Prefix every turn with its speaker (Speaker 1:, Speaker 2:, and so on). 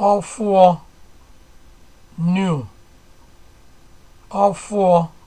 Speaker 1: four new ọfụọ